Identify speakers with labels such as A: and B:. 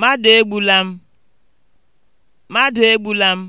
A: Mmadụ egbula m. Mmadụ egbula m.